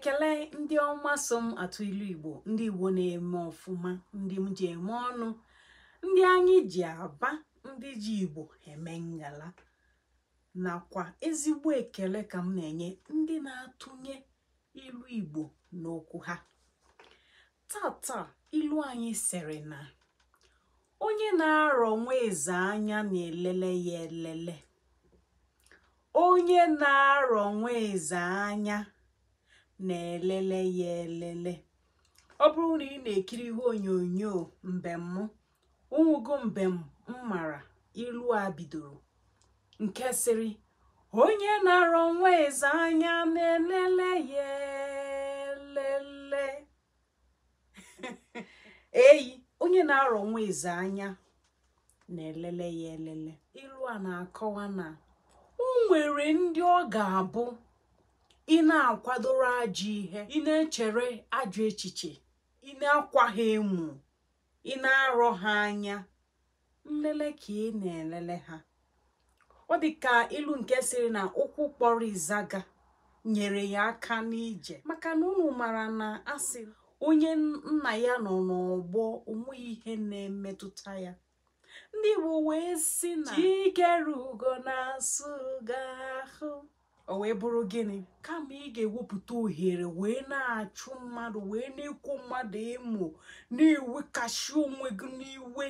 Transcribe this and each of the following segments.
ekele ndị ọma so m atụ ilu igbo ndị igbo na-eme ọfụma ndị m ji eme ọnụ ndị anyị ji aba ndị ji igbo eme ngala nakwa ezigbo ekele ka m na-enye ndị na-atụnye ilu igbo n'okwu ha tata ilu anyị sịrị na onye na-arọ nwa anya na-elele ya elele onye na-arọ nwa anya na-elele ya elele ọ bụrụ na ị na-ekiri ihe onyonyo mbem ụnwụgo mbem mmara ilu a bidoro nke sịrị onye na-arọ nwa anya na-elele ya elele eyi onye na-arọ nwa anya na-elele ya elele ilu a na-akọwa na o nwere ndị ọ ga-abụ ị na-akwadoro ajọ ihe ị na-echere ajọ echiche ị na-akwa ha emu ị na-arọ ha anya nlele ka ị na-elele ha ọ dị ka ilu nke sịrị na ụkwụ kpọrọ ịzaga nyere ya aka n'ije maka na unu mara na asị onye nna ya nọ n'ọgbọ onweghị ihe na-emetụta ya ndị Igbo wee sị na chike rugo na-asụ ahụ o wee bụrụ gịnị kama ị ga-ewepụta ohere wee na-achụ mmadụ wee na-ekwu mmadụ ịmụ na-ewekashi onwe gị n'iwe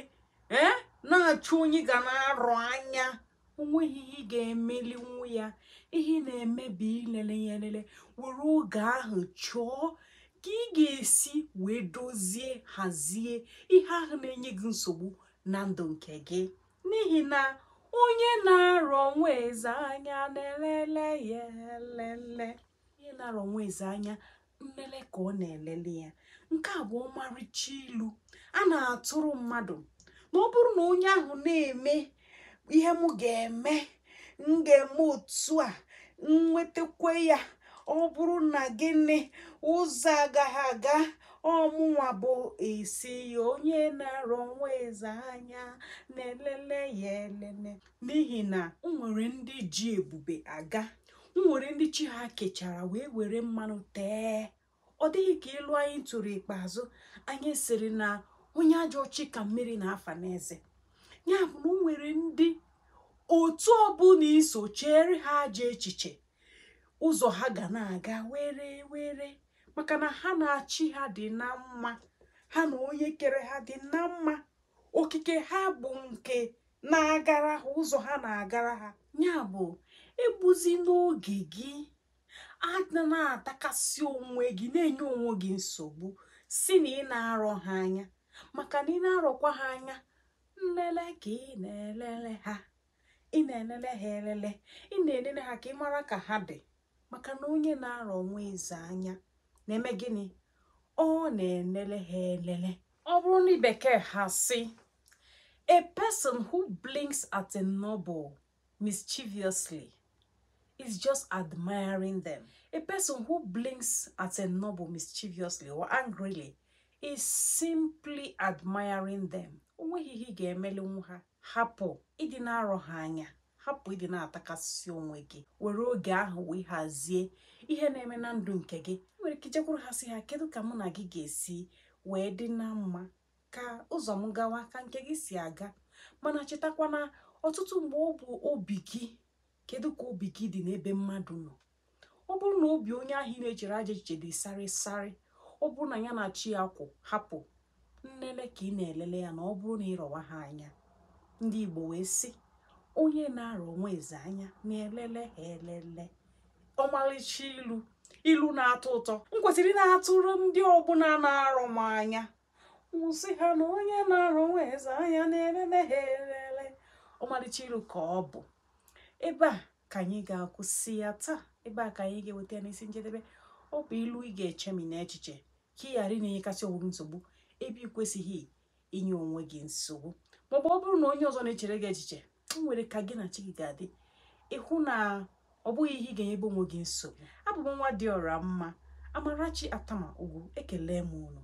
ee na-achụ onye ga na-arụ anya onweghị ihe ị ga-emeli nwa ya ihe na-emebi ilele ya elele were oge ahụ chọọ ka ị ga-esi wee dozie hazie ihe ahụ na-enye gị nsogbu na ndụ nke gị n'ihi na onye na-arọ nwa eze anya na-elele ya elele onye na-arọ nwa eze anya nlele ka ọ na-elele ya nke a bụ ọmarịcha ilu a na-atụrụ mmadụ ma ọ bụrụ na onye ahụ na-eme ihe m ga-eme m ga-eme otu a m ya ọ bụrụ na gịnị ụzọ agaghị aga ọmụnwa bụ isi onye na-arọ nwa eze anya na-elele ya elele n'ihi na nwere ndị ji ebube aga nwere ndị chi ha kechara wee were mmanụ tee ọ dịghị ka ịlụ anyị tụrụ ikpeazụ anyị siri na onye ajọ ọchị ka mmiri na-afa n'eze ya bụ na nwere ndị otu ọbụla iso chere ha ajọ echiche ụzọ ha ga na-aga were were maka na ha na-achị ha dị na mma ha na onye kere ha dị na mma okike ha bụ nke na-agara ha ụzọ ha na-agara ha ya bụ ebuzi n'oge gị ana na-atakasị onwe gị na-enye onwe gị nsogbu si na ị na-arọ ha anya maka na ị na-arọkwa ha anya nlele ka ị na-elele ha ị na-elele ha elele ị na-elele ha ka ị mara ka ha dị maka na onye na-arọ onwe eze anya na-eme gịnị ọ na elele ha elele ọ bụrụ na bekee ha si a person who blinks at a noble mischievously is just admiring them a person who blinks at a mischievously or angrily is simply admiring them onweghị ihe ị ga-emeli nwa ha hapụ ịdị na-arọ ha anya hapụ ịdị na-atakasị onwe gị were oge ahụ wee hazie ihe na-eme na ndụ nke gị jekwuru ha si ha kedu ka mụ na gị ga-esi wee dị na mma ka ụzọ m gawa ka nke gị si aga mana chetakwa na ọtụtụ mgbe ọ bụ obi gị kedu ka obi gị dị n'ebe mmadụ nọ ọ bụrụ na obi onye ahụ ị na-echere aja echiche dị sarịsarị ọ bụrụ na ya na chi ya kwụ hapụ nlele ka ị na-elele ya na ọ bụrụ na ịrọwa ha anya ndị Igbo wee sị onye na-arọ onwe eze anya na-elele ha elele ọmalịcha ilu ilu na-atọ ụtọ m kwesịrị na-atụrụ ndị ọbụla na-arọ m anya wụsị ha na onye na-arụ eze anya na-elele ha elele ọmalịcha ilu ka ọ bụ ebe a ka anyị ga-akwụsị ya taa ebe a ka anyị ga-eweta ya n'isi njedebe ọ bụ ilu ị ga-eche m n'echiche ka ị ghara ị na-enyekasị onwe nsogbu ebe ị kwesịghị inye onwe gị nsogbu maọbụ ọ bụrụ na onye ọzọ na-echere gị echiche m nwere ka gị na chi gị ga-adị ịhụ na ọ bụghị ihe ị ga-enyebe onwe gị nsogbu abụ nwa dị ọra mma amarachi atama ugwu ekele m unu